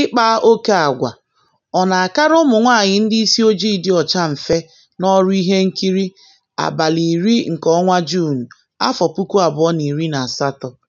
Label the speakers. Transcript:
Speaker 1: Ịkpa oke agwa ọ na-akara ụmụ nwanyị ndị isi ojii dị ọcha mfe n'ọrụ ihe nkiri? Abalị iri nke ọnwa Juun, afọ
Speaker 2: puku abụọ na na iri asatọ?